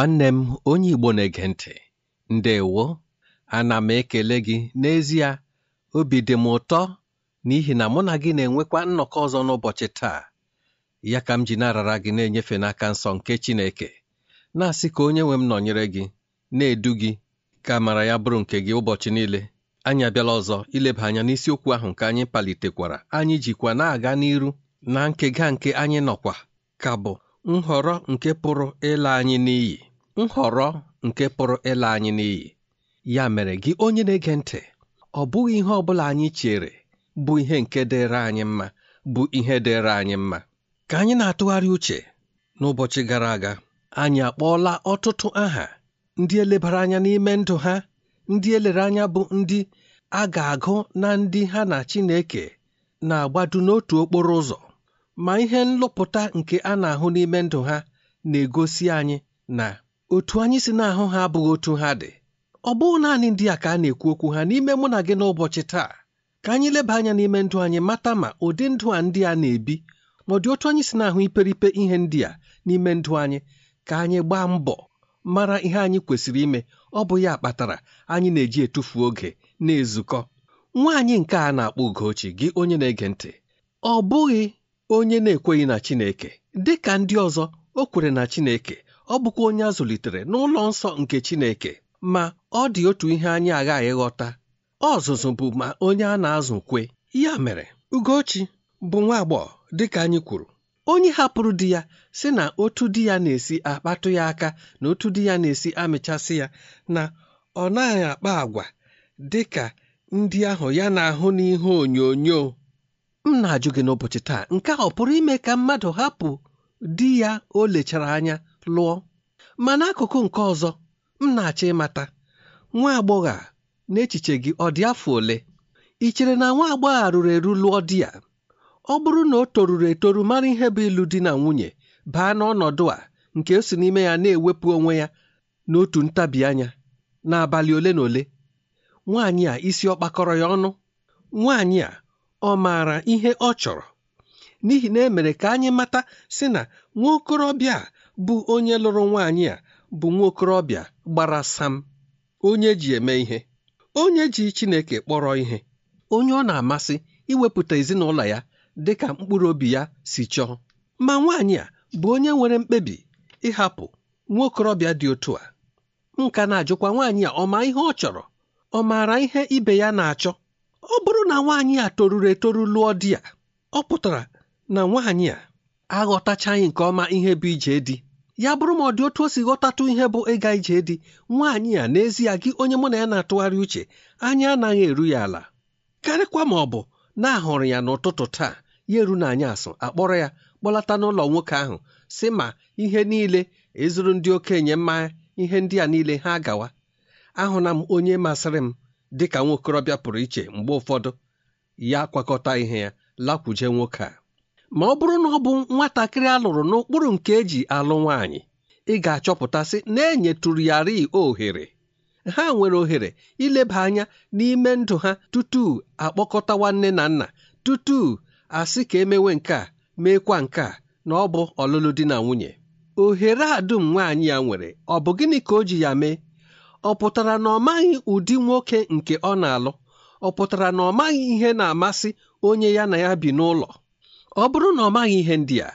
nwanne m onye Igbo na-ege ntị ndewo ana m ekele gị n'ezie obi dị m ụtọ n'ihi na mụ na gị na-enwekwa nnọkọ ọzọ n'ụbọchị taa ya ka m ji na-arara gị na-enyefe n'aka nsọ nke Chineke na-asị ka onye nwe m nọnyere gị na-edu gị ka amara ya bụrụ nke gị ụbọchị niile anyị abịala ọzọ ileba anya n'isiokwu ahụ nke anyị palitekwara anyị jikwa na-aga n'iru na nkega nke anyị nọkwa ka bụ nhọrọ nke pụrụ ịla anyị n'iyi nhọrọ nke pụrụ ịla anyị n'iyi ya mere gị onye na-ege ntị ọ bụghị ihe ọ bụla anyị chere bụ ihe nke dịrị anyị mma bụ ihe dịrị anyị mma ka anyị na-atụgharị uche n'ụbọchị gara aga anyị akpọọla ọtụtụ aha ndị elebara anya n'ime ndụ ha ndị elere anya bụ ndị a ga-agụ na ndị ha na Chineke na-agbadu n'otu okporo ụzọ ma ihe nlụpụta nke a na-ahụ n'ime ndụ ha na-egosi anyị na otu anyị si na-ahụ ha abụghị otu ha dị ọ bụghị naanị ndị a ka a na-ekwu okwu ha n'ime mụ na gị n'ụbọchị taa ka anyị leba anya n'ime ndụ anyị mata ma ụdị ndụ a ndị a na-ebi ma ọ dị otu anyị si na-ahụ iperipe ihe ndị a n'ime ndụ anyị ka anyị gbaa mbọ mara ihe anyị kwesịrị ime ọ bụ ya kpatara anyị na-eji etufu oge na-ezukọ nwaanyị nke a na-akpọ Ugochi gị onye na-ege ntị ọ bụghị onye na-ekweghị na Chineke dị ka ndị ọzọ o kwere na Chineke ọ bụkwa onye a zụlitere n'ụlọ nsọ nke Chineke ma ọ dị otu ihe anyị aghaghị ghọta ọzụzụ bụ ma onye a na-azụ kwe ya mere Ugochi bụ nwa agbọghọ dịka anyị kwuru onye hapụrụ di ya sị na otu di ya na-esi akpatụ ya aka na otu di ya na-esi amịchasị ya na ọ naghị akpa agwa dị ka ndị ahụ ya na-ahụ n'ihe onyonyo m na-ajụ gị n'ụbọchị taa nke a ọ pụrụ ime ka mmadụ hapụ di ya o lechara anya lụọ ma n'akụkụ nke ọzọ m na-achọ ịmata nwa agbọghọ a n'echiche gị ọ dị afọ ole ị chere na nwa agbọghọ a eru lụọ di ya ọ bụrụ na o toruru etoru mara ihe bụ ịlụ di na nwunye baa n'ọnọdụ a nke o si n'ime ya na-ewepụ onwe ya n'otu ntabi anya n'abalị ole na ole nwaanyị a isi ọ kpakọrọ ya ọnụ nwaanyị a ọ maara ihe ọ chọrọ n'ihi na emere ka anyị mata sị na nwa okorobịa a bụ onye lụrụ nwaanyị a bụ nwa okorobịa gbara sam onye ji eme ihe onye ji Chineke kpọrọ ihe onye ọ na-amasị iwepụta ezinụlọ ya dị ka mkpụrụ obi ya si chọọ ma nwaanyị a bụ onye nwere mkpebi ịhapụ nwa okorobịa dị otu a nka na-ajụkwa nwaanyị a ọ ma ihe ọ chọrọ ọ maara ihe ibe ya na-achọ ọ bụrụ na nwaanyị a toruru etoru lụọ di ya ọ pụtara na nwaanyị a aghọtachaghị nke ọma ihe bụ ije dị. ya bụrụ ma ọ dị otu o si ghọtatụ ihe bụ ịga ije dị nwaanyị a n'ezie gị onye mụ na ya na-atụgharị uche anyị anaghị eru ya ala karịkwa ma ọ bụ na-ahụrụ ya n'ụtụtụ taa ya eru na anyị asụ akpọrọ ya kpọlata n'ụlọ nwoke ahụ si ma ihe niile ezuru ndị okenye mmanya ihe ndị a niile ha gawa ahụna m onye masịrị m dị ka nwa pụrụ iche mgbe ụfọdụ ya kwakọta ihe ya lakwuje nwoke a ma ọ bụrụ na ọ bụ nwatakịrị alụrụ n'ụkpụrụ nke eji alụ nwaanyị ị ga-achọpụtasị na enyetụrụ yari ohere ha nwere ohere ileba anya n'ime ndụ ha tutu akpọkọta nwanne na nna tutu asị ka emewe nke a meekwa nke a na ọ bụ ọlụlụ di na nwunye ohere a dum nwaanyị ya nwere ọ bụ gịnị ka o ji ya mee ọ pụtara na ọ maghị ụdị nwoke nke ọ na-alụ ọ pụtara na ọ maghị ihe na-amasị onye ya na ya bi n'ụlọ ọ bụrụ na ọ maghị ihe ndị a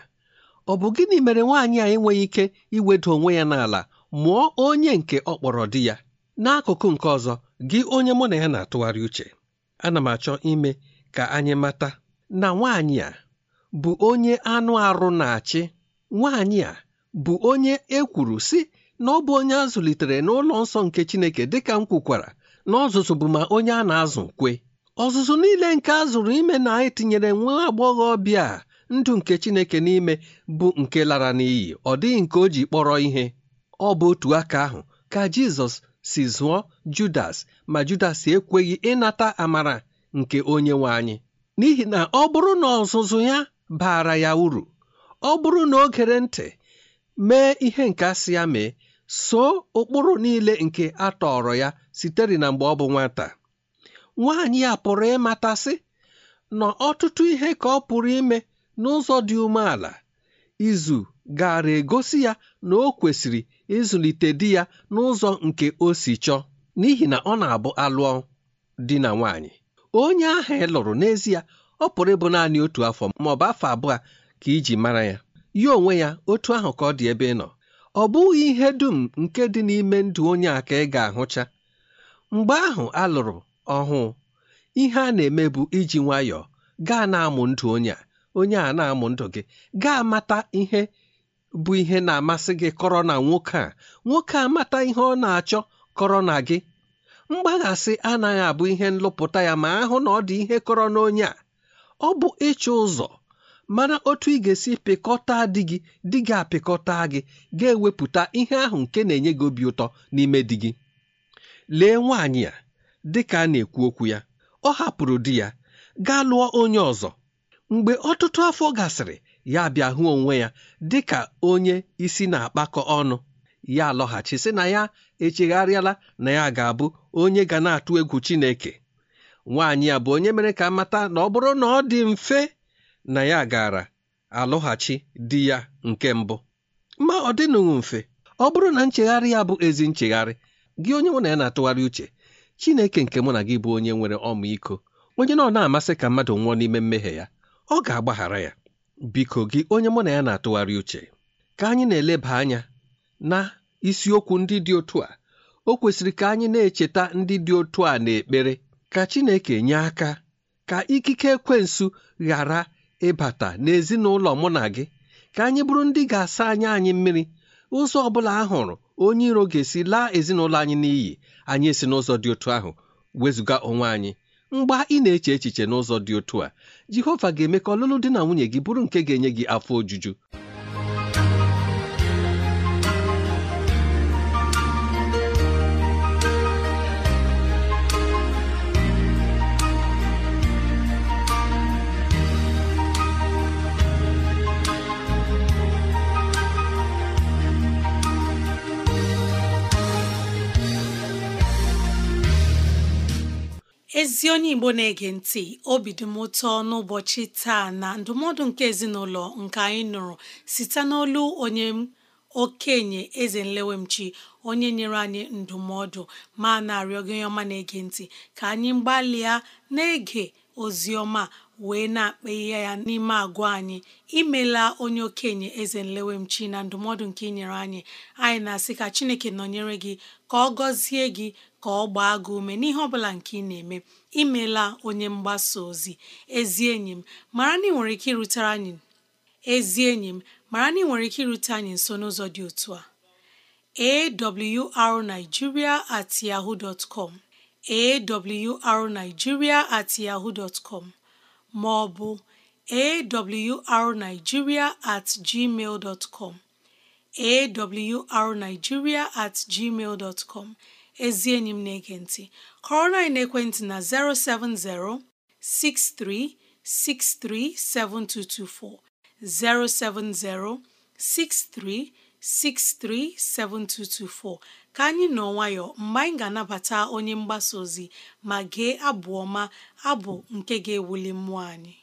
ọ bụ gịnị mere nwaanyị a enweghị ike iweda onwe ya n'ala mụọ onye nke ọ kpọrọ di ya n'akụkụ nke ọzọ gị onye mụ na ya na-atụgharị uche ana m achọ ime ka anyị mata na nwaanyị a bụ onye anụ arụ na-achị nwaanyị a bụ onye e kwuru si na ọ bụ onye a zụlitere n'ụlọ nsọ nke Chineke dịka m kwukwara na ọzụzụ bụ ma onye a na-azụ kwe ọzụzụ niile nke a zụrụ ime na anyị tinyere nwa agbọghọbịa ndụ nke chineke n'ime bụ nke lara n'iyi ọ dịghị nke o ji kpọrọ ihe ọ bụ otu aka ahụ ka jizọs si zụọ judas ma judas ekweghị ịnata amara nke onye nwe anyị n'ihi na ọ bụrụ na ọzụzụ ya baara ya uru ọ bụrụ na o gere ntị mee ihe nke asị ya mee soo ụkpụrụ niile nke a ya sitere na mgbe ọ bụ nwata nwaanyị a pụrụ ịmatasị na ọtụtụ ihe ka ọ pụrụ ime n'ụzọ dị umeala izu gara egosi ya na o kwesịrị ịzụlite di ya n'ụzọ nke o si chọọ n'ihi na ọ na-abụ alụọ di na nwaanyị onye ahụ ị e lụrụ n'ezie ọ pụrụ ịbụ naanị otu afọ ma ọ bụ afọ abụọ ka iji mara ya ya onwe ya otu ahụ ka ọ dị ebe ị nọ ọ bụghị ihe dum nke dị n'ime ndụ onye a ka ị ga-ahụcha mgbe ahụ alụrụ. ọhụụ ihe a na-eme bụ iji nwayọọ gaa na-amụ ndụ onye a onye a na-amụ ndụ gị gaa mata ihe bụ ihe na-amasị gị kọrọ na nwoke a nwoke a mata ihe ọ na-achọ kọrọ na gị mgbaghasị anaghị abụ ihe nlụpụta ya ma ahụ na ọ dị ihe kọrọ n'onye a ọ bụ ịchụ ụzọ mana otu ị ga-esi pịkọta di gị di gị apịkọta gị ga-ewepụta ihe ahụ nke na-enye gị obi ụtọ n'ime di gị lee nwaanyị a dị ka a na-ekwu okwu ya ọ hapụrụ di ya gaa lụọ onye ọzọ mgbe ọtụtụ afọ gasịrị ya bịa hụ onwe ya dị ka onye isi na-akpakọ ọnụ ya lọghachi sị na ya echegharịala na ya ga-abụ onye ga na-atụ egwu Chineke nwaanyị a bụ onye mere ka mata na ọ bụrụ na ọ dị mfe na ya gara alọghachi di ya nke mbụ ma ọ dịnụghị mfe ọ bụrụ na nchegharị ya bụ ezi nchegharị gị onye mụ na ya na-atụgharị uche Chineke nke mụ na gị bụ onye nwere ọmịiko onye nọ na-amasị ka mmadụ nwụọ n'ime mmehie ya ọ ga-agbaghara ya biko gị onye mụ na ya na-atụgharị uche ka anyị na-eleba anya na isiokwu ndị dị otu a o kwesịrị ka anyị na-echeta ndị dị otu a n'ekpere ka Chineke nye aka ka ikike ekwensu ghara ịbata n'ezinụlọ mụ na gị ka anyị bụrụ ndị ga-asa anya anyị mmiri ụzọ ọ bụla a hụrụ onye iro ga-esi laa ezinụlọ anyị n'iyi anyị esi n'ụzọ dị otu ahụ wezụga onwe anyị mgba ị na-eche echiche n'ụzọ dị otu a jehova ga-eme ka ọlụlụ dị na nwunye gị bụrụ nke ga-enye gị afọ ojuju ndị onye Igbo na-ege ntị obi dị m ụtọ n'ụbọchị taa na ndụmọdụ nke ezinụlọ nke anyị nụrụ site n'olu onye okenye eze nlewemchi onye nyere anyị ndụmọdụ ma na-arịọ gị ọma na-ege ntị ka anyị gbalịa na-ege ozi ọma wee na-akpa ihe ya n'ime agwa anyị imela onye okenye eze nlewemchi na ndụmọdụ nke inyere anyị anyị na-asị ka chineke nọnyere gị ka ọ gọzie gị ka ọ gbaa gị ume n'ihe ọbụla nke ị na-eme imela onye mgbasa ozi ezi enyi m mara na ị nwere ike irutere anyị ezi enyi m mara na nwere ike irute anyị nso n'ụzọ dị otu a awrnigeria at com at ma ọ bụ at com ezi enyi m na-ege ntị kọrọ anyị n'ekwentị na 070 6363 7224 070 6363 7224 ka anyị nọ nwayọ mgbe anyị ga-anabata onye mgbasa ozi ma gee abụ ọma abụ nke ga-ewuli mmụọ anyị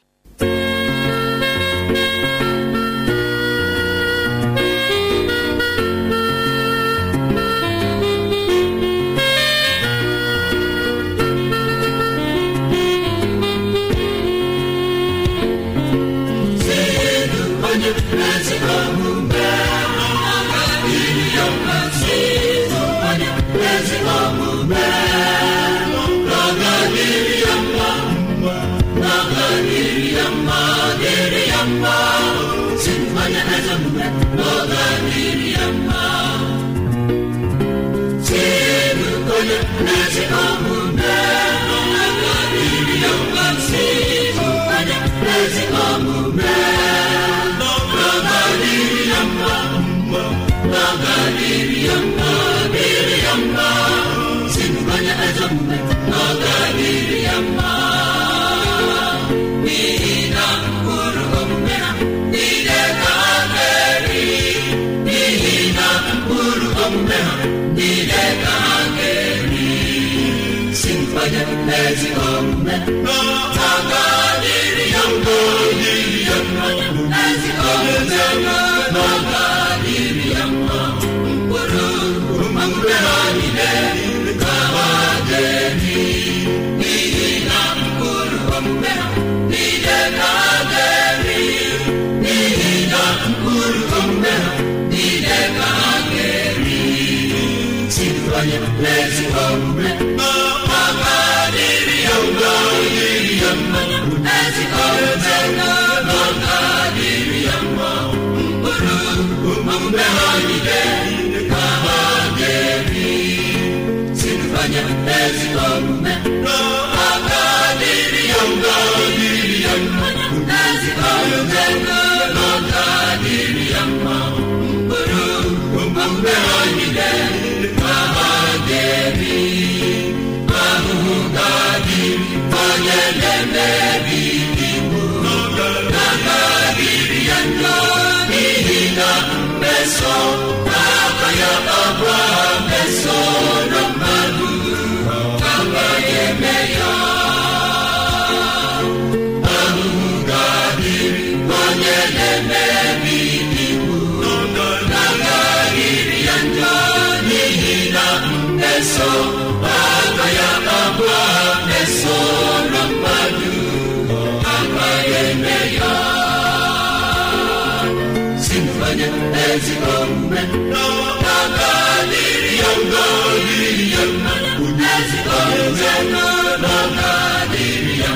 onye ezi omume ezi mmanya ezigbo omume n'aka dịrị ya mma dịrị ya mma ezigbo omume n'aka dịrị ya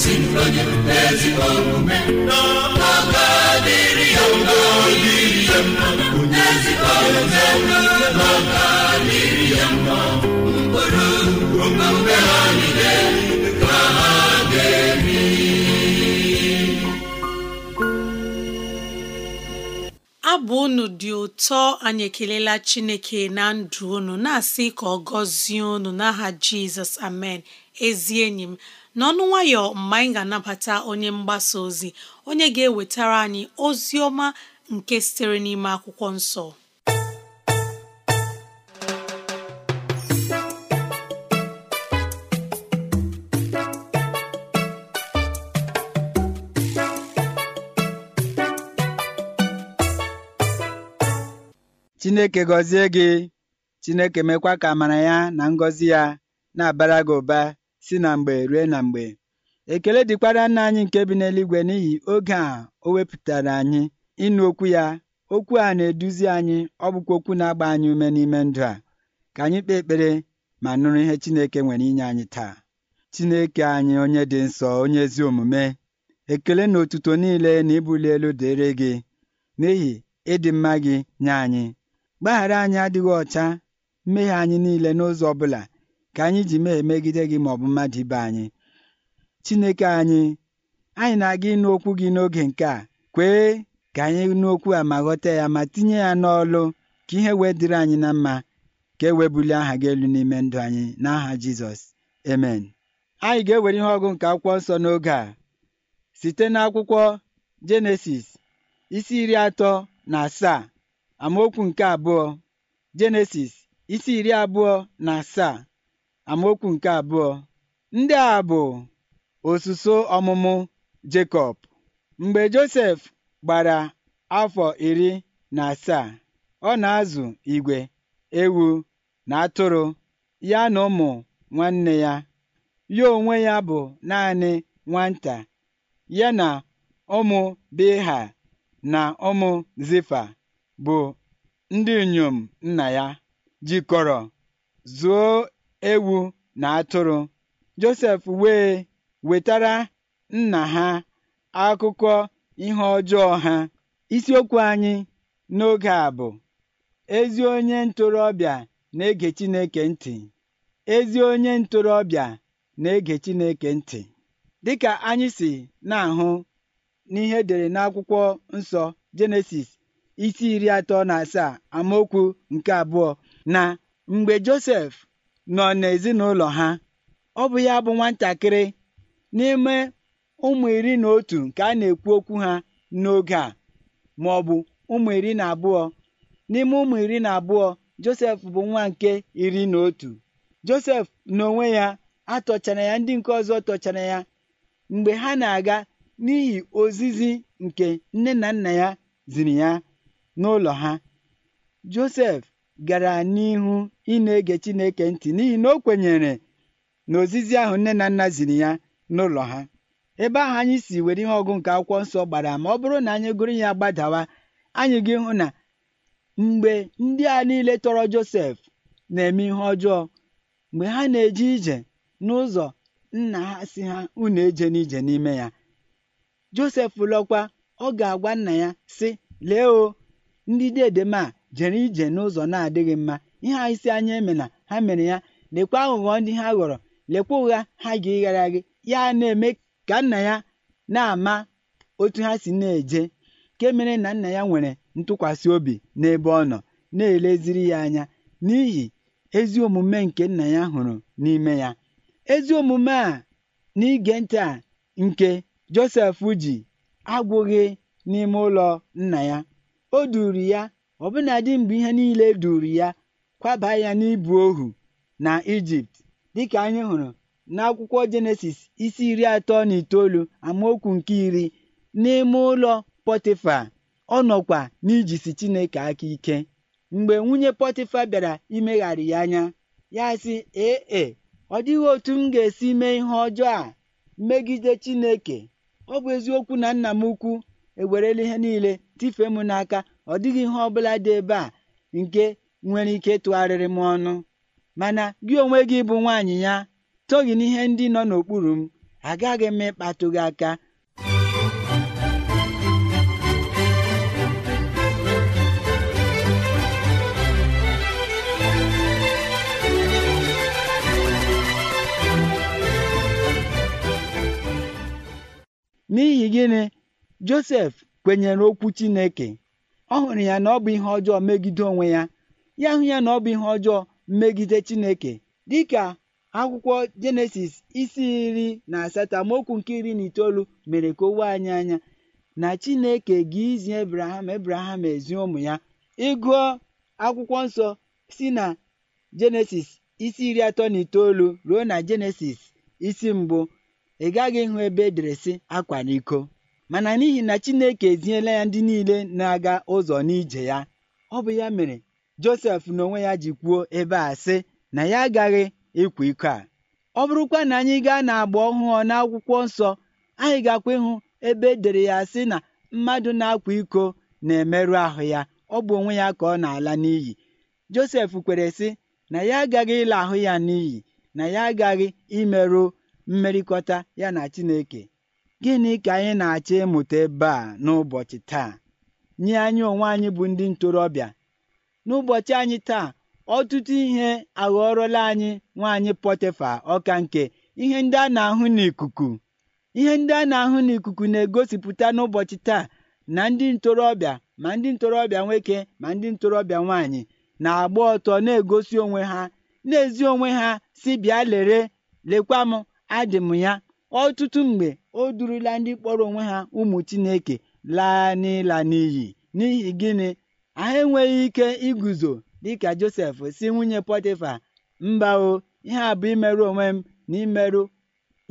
si mmanya ezigbo omume ya ya ezigbo omume ya mma mkpụrụ omume ọ bụ unu dị ụtọ anyị ekelela Chineke na ndụ unu na-asị ka ọ gọzie unu n'aha Jizọs amen ezi enyi m n'ọnụ nwayọ mgbe anyị ga-anabata onye mgbasa ozi onye ga-ewetara anyị ozi ọma nke sitere n'ime akwụkwọ nsọ Chineke gọzie gị Chineke mekwa ka amara ya na ngọzi ya na-abara gị ụba si na mgbe ruo na mgbe ekele dịkwara nna anyị nke bi n'eluigwe n'ihi oge a o wepụtara anyị ịnụ okwu ya okwu a na-eduzi anyị ọ bụkwa okwu na-agba anyị ume n'ime ndụ a ka anyị kpee ekpere ma nụrụ ihe Chineke nwere inye anyị taa Chineke anyị onye dị nsọ onye ezi omume ekele na otuto niile na ịbụli elu dịrị gị n'ihi ịdị mma gị nye anyị Gbaghara anyị adịghị ọcha mmehie anyị niile n'ụzọ ọbụla ka anyị ji mee megide gị ma ọ bụ mmadụ ibe anyị. Chineke anyị anyị na-aga ịnụ okwu gị n'oge nke a kwee ka anyị nụ okwu a ma ghọta ya ma tinye ya n'ọlụ ka ihe wee dịrị anyị na mma ka e wee bulie aha gị elu n'ime ndụ anyị n'aha Jizọs amen anyị ga-ewere ihe ọgụ nke akwụkwọ nsọ n'oge a site n'akwụkwọ Jenesis isi iri atọ na asaa amaokwu nke abụọ jenesis isi iri abụọ na asaa amaokwu nke abụọ ndị a bụ osuso ọmụmụ jekọb mgbe josef gbara afọ iri na asaa ọ na-azụ igwe ewu na atụrụ ya na ụmụ nwanne ya ya onwe ya bụ naanị nwata ya na ụmụ biha na ụmụ zifa bụ ndị inyom nna ya jikọrọ zuo ewu na atụrụ Josef wee wetara nna ha akụkọ ihe ọjọọ ha isiokwu anyị n'oge a bụ ezi onye ntorobịa na-ege Chineke ntị ezi onye ntorobịa na-ege Chineke ntị dịka anyị si na-ahụ n'ihe edere n'akwụkwọ nsọ Jenesis isi iri atọ na asaa amaokwu nke abụọ na mgbe Josef nọ n'ezinụlọ ha ọ bụ ya bụ nwatakịrị n'ime ụmụ iri na otu nke a na-ekwu okwu ha n'oge a ma ọ bụ ụmụ iri na abụọ n'ime ụmụ iri na abụọ Josef bụ nwa nke iri na otu Josef n'onwe ya atọchara ya ndị nke ọzọ tọchara ya mgbe ha na-aga n'ihi ozizi nke nne na nna ya ziri ya n'ụlọ ha josef gara n'ihu ịna ege chineke ntị n'ihi na o kwenyere na ozizi ahụ nne na nna ziri ya n'ụlọ ha ebe ahụ anyị si were ihe ọgụ nke akwụkwọ nsọ gbara ma ọ bụrụ na anyị gụrụ ya gbadawa anyị gị hụ na mgbe ndị a niile tọrọ josef na-eme ihe ọjọọ mgbe ha na-eje ije n'ụzọ nna ha si ha unu eje n'ije n'ime ya josef lọkwa ọ ga-agwa nna ya sị lee o ndị diedem a jere ije n'ụzọ na-adịghị mma ihe a isi anya eme na ha mere ya lekwa aghụghọ ndị ha ghọrọ lekwa ụgha ha ga-ịghara gị ya na-eme ka nna ya na-ama otu ha si na-eje nke mere na nna ya nwere ntụkwasị obi n'ebe ọ nọ na-eleziri ya anya n'ihi ezi omume nke nna ya hụrụ n'ime ya ezi omume a n'ige ntị a nke Josef ji agwụghị n'ime ụlọ nna ya O duuru ya ọbụnadị mgbe ihe niile e duuru ya kwaba ya n'ịbụ ohu na Ijipt, dịka anyị hụrụ n'akwụkwọ Jenesis isi iri atọ na itoolu amaokwu nke iri. N'ime ụlọ Pọtịfa, ọ nọkwa n'ijisi Chineke aka ike. Mgbe nwunye Pọtịfa bịara imegharị ya anya, ya sị, ee e, ọ dịghị otu m ga-esi mee ihe ọjọọ a megide Chineke. Ọ bụ eziokwu na nna m ukwu ewerela ihe niile tifee m n'aka ọ dịghị ihe ọ bụla dị ebe a nke nwere ike tụgharịrị m ọnụ mana gị onwe gị bụ nwanyị ya toghị n'ihe ndị nọ n'okpuru m agaghị m ịkpatụ gị aka n'ihi gịnị josef kwenyere okwu chineke ọ hụrụ ya na ọ bụ ihe ọjọọ megide onwe ya ya hụ ya na ọ bụ ihe ọjọọ megide chineke dịka akwụkwọ jenesis isi iri na asatọ amaokwu nke iri na itoolu mere ka owe anyị anya na chineke ga izi ebraham ebraham ezi ụmụ ya ịgụọ akwụkwọ nsọ si na jenesis isi iri atọ na itoolu ruo na jenesis isi mbụ ị gaghị ịhụ ebe edere sị akwa n'iko mana n'ihi na Chineke eziela ya ndị niile na-aga ụzọ n'ije ya ọ bụ ya mere Josef n'onwe ya ji kwuo ebe a sị na ya agaghị ịkwa iko a ọ bụrụkwa na anyị gaa n'agba ọhụụ n'akwụkwọ nsọ anyị gakwa ịhụ ebe edere ya sị na mmadụ na-akwa iko na-emerụ ahụ ya ọ bụ onwe ya ka ọ na-ala n'iyi Josef kwere sị na ya agaghị ịla ahụ ya n'iyi na ya agaghị imerụ mmerịkọta ya na Chineke Gịnị ka anyị na-achọ ịmụta ebe a n'ụbọchị taa? Nye anyị onwe anyị bụ ndị ntorobịa. N'ụbọchị anyị taa, ọtụtụ ihe aghọọrọla anyị nwaanyị Pọtịfa ọka nke ihe ndị a na-ahụ n'ikuku. Ihe ndị a na-ahụ n'ikuku na-egosipụta n'ụbọchị taa na ndị ntorobịa ma ndị ntorobịa nwoke ma ndị ntorobịa nwaanyị na-agba ọtọ na-egosi onwe ha na-ezi onwe ha si bịa lere lekwa m adị m ya. Ọtụtụ mgbe o durula ndị kpọrọ onwe ha ụmụ Chineke laa n'ịla n'iyi n'ihi gịnị anyị enweghị ike iguzo dịka Josef si nwunye Pọtịfa mba o ihe a bụ imerụ onwe m na imerụ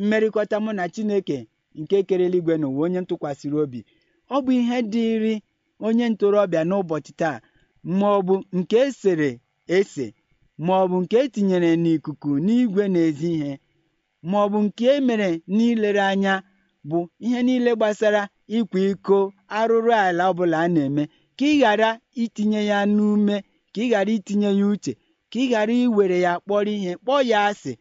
mmerịkọta mụ na Chineke nke kere eluigwe n'ụwa onye ntụkwasịrị obi ọ bụ ihe dịịrị onye ntorobịa n'ụbọchị taa ma ọ bụ nke esere ese ma ọ bụ nke etinyere n'ikuku n'igwe n'ezi ihe ma ọ bụ nke emere n'ilere anya bụ ihe niile gbasara ịkwa iko arụrụ ala ọbụla a na-eme ka ị ghara itinye ya n'ume ka ị ghara itinye ya uche ka ị ghara iwere ya kpọrọ ihe kpọọ ya asị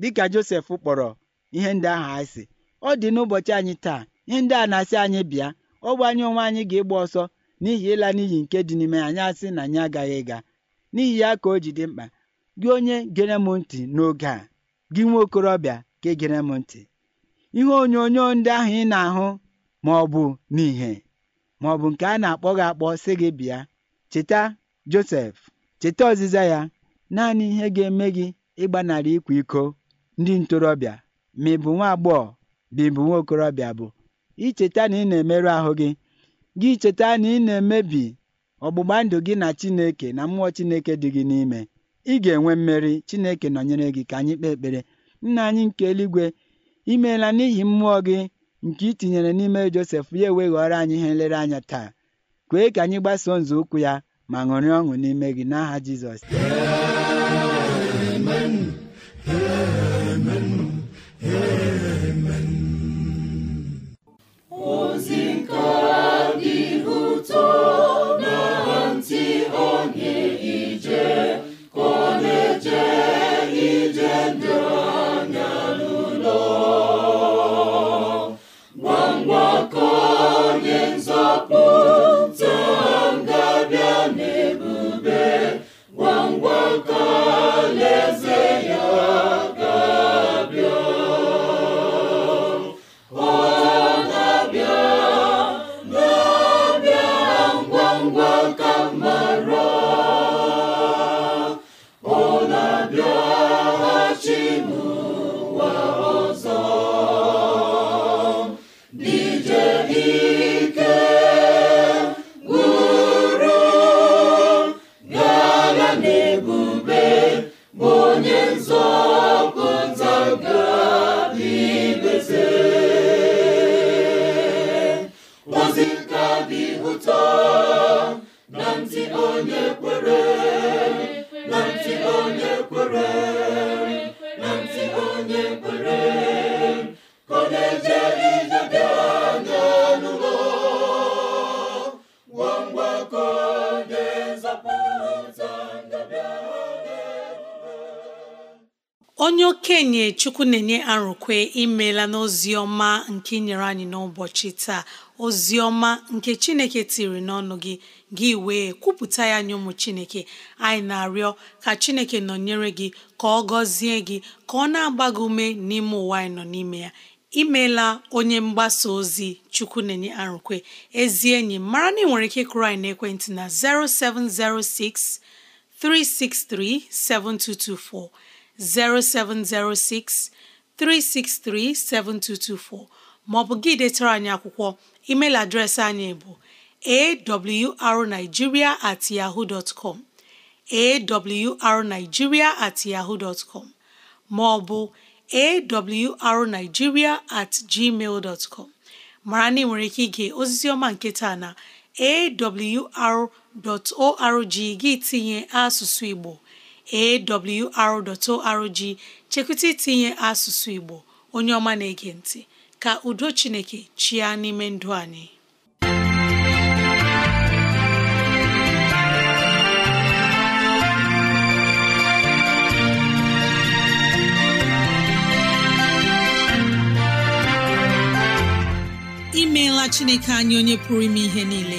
dịka Josef kpọrọ ihe ndị ahụ asị ọ dị n'ụbọchị anyị taa ihe ndị a na-asị anyị bịa ọ bụ anyị onwe anyị ga-ịgba ọsọ n'ihi ịla n'iyi nke dị n'ime anyị asị na anyị agaghị ịga n'ihi ya ka o ji dị mkpa gị onye gere m ntị n'oge a gị nwa okorobịa ka e gere m ntị ihe onyonyo ndị ahụ ị na-ahụ ma ọ bụ n'ihe ma ọ bụ nke a na-akpọ gị akpọ sị gị bịa cheta Josef cheta ọzịza ya naanị ihe ga-eme gị ịgbanarị ịkwa iko ndị ntorobịa ma ị bụ nwa agbọghọ ma ị bụ nwa okorobịa bụ icheta na ị na-emerụ ahụ gị gị cheta na ị na-emebi ọgbụgba ndụ gị na Chineke na mmụọ Chineke dị gị n'ime ị ga-enwe mmeri Chineke nọnyere gị ka anyị kpee ekpere nna anyị nke eluigwe I meela n'ihi mmụọ gị nke ị tinyere n'ime Josef ya eweghọrọ ọrụ anyị ihe anya taa kwee ka anyị gbasoo nzọụkwụ ya ma ṅụrị ọṅụ n'ime gị n'aha Jizọs onye okenye chukwu na-enye arụkwe imela n'ozi ọma nke nyere anyị n'ụbọchị taa ozi ọma nke chineke tiri n'ọnụ gị gị wee kwupụta ya nye ụmụ chineke anyị na-arịọ ka chineke nọnyere gị ka ọ gọzie gị ka ọ na-agba gị ume n'ime ụwa anyị nọ n'ime ya imeela onye mgbasa ozi chukwu na-enye arụkwe ezi enyi mara na ị nwere ike kụrụ anyị n'ekwentị na 0706 363 7224 0706 363 7224 maọbụ gị detara anyị akwụkwọ email adreesị anyị bụ arigiria at yahoo dot com at yahoo dot com maọbụ arigiria at gmail dot com mara na ị nwere ike ige osisioma ọma nke taa na awr.org gị tinye asụsụ Igbo awr.org chekwụta itinye asụsụ Igbo onye ọma na-ege ntị ka udo Chineke chịa n'ime ndụ anyị imeela Chineke anyị onye pụrụ ime ihe niile